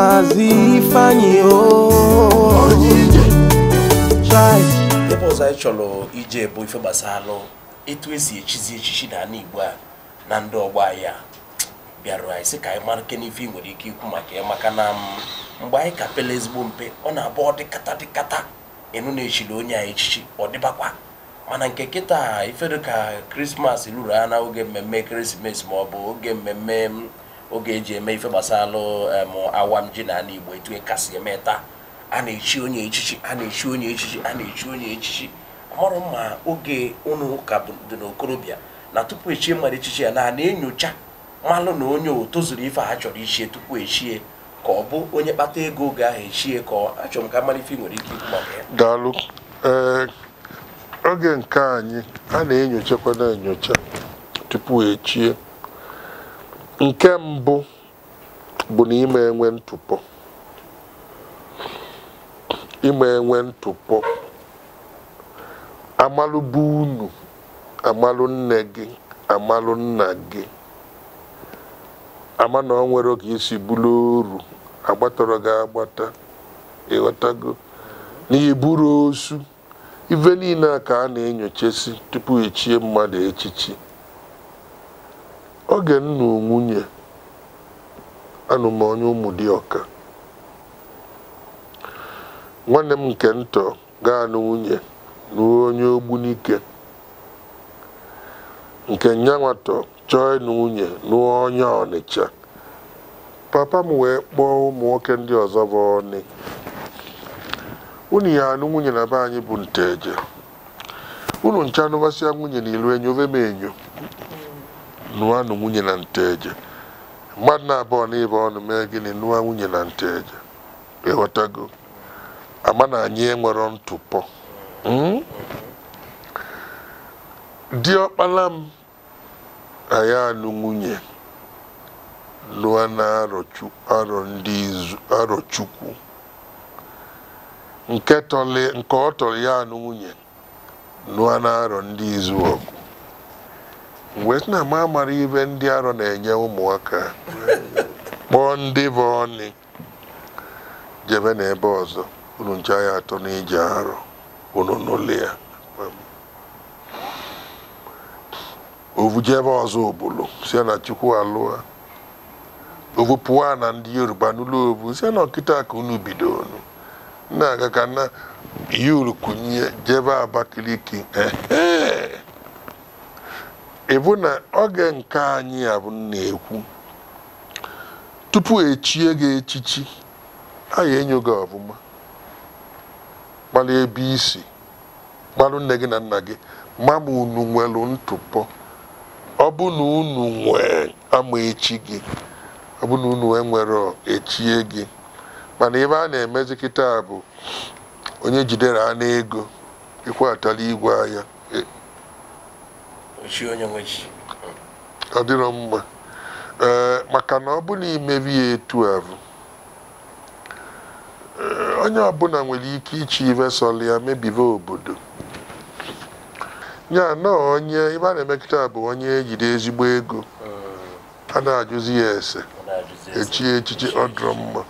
Maazị ebe ọzọ anyị chọrọ ije bụ ife gbasalụ etu esi echizi echichi na ala Igbo a na ndị ọgbọ anyị a bịarụ anyị sị ka anyị mara n'ife nwere ike ikwu maka ya maka na mm, mgbe anyị ka pele ezigbo mpe ọ na-abụ ọ dịkata dịkata na-echiri onye anyị echichi ọ dịbakwa mana nke kịta ifedo ka krismas ruru ha na oge mmemme ekeresimesi ma ọ bụ oge mmemme mm, oge eji eme ife gbasalụ awam ji na ala igbo etu e kasị eme taa a na-echi onye echichi a na-echi onye echichi a na-echi onye echichi amarụ ma oge ụnụ ka dị n'okorobịa na tupu echie mmadụ echichi ya na na-enyocha malụ na onye o tozuru ife ha chọrọ ichie tupu echie ka ọ bụ onye kpata ego oge ahụ echie ka achọrọ m ka mara ife nwere ike ikwu eh, oge nke anyị a na-enyochakwa na-enyocha tupu echie nke mbụ bụ na ime enwe ntụpọ ime enwe ntụpọ amalụ bụ unu amalụ nne gị amalụ nna gị ama na ọ nwere ka isi bụrụ oru agbatọrọ gị agbata ịghọtago na iburu osu ife niile a ka a na-enyochasi tupu echie mmadụ echichi oge nna onwunye. anụmonye ụmụ dịọka nwanne m nke ntọ gaa na nwunye nuo onye ogbunike nke nyanwatọ chọọ ịnụ nwunye nuo onye ọnịcha papa m wee kpọọ ụmụ nwoke ndị ọzọ bụ ọnị unu ya anụ nwunye na be anyị bụ nteje unu ncha anụbasịa nwunye na ilu enyo ove m enyo nụọ anụ nwunye na nteje mmadụ na-abụọ na ọnụ mee gịnị nụwa nwunye na nte eje ịghọtago ama na anyị enwere ntụpọ hmm? ọkpala m ya anụ nwunye lụa na arọ chukwu nke ọ tọrọ ya anụ nwunye lụa na arọ ndị izu ọgụ wee na-ama amara ibe ndị arọ na-enye ụmụaka kpọọ ndị bụ ọnị jebe ebe ọzọ unu nche ya atọ n'ije arọ unu n'ụlọ ya ovujebe ọzọ obulu si na chukwu alụa ovu pụọ na ndị yoruba n'ụlọ ovu si na ọkịta ka unu bido unu na-aga ka na yuru jebe abakiliki ehe ịbụ na oge nke anyị abụ na-ekwu tupu echie gị echichi anyị enyo gị ọbụma gbalụ ebe isi gbalụ nne gị na nna gị ma ma unu nwere ntụpọ ọ bụ na unu nwee ama echi gị ọ bụ na unu e nwere echie gị mana ebe a na-emezikịta bụ onye jidere anụ ego ịkwatala igwe anya onye nwe ọ dịrọ mma ee maka na ọ bụ na imebi ya etu ahụ onye ọbụla nwere ike ichi ive ya mebibe obodo ya na onye ibe a na-emekọta bụ onye ejiri ezigbo ego a na-ajụzi ya ese echi echichi ọ mma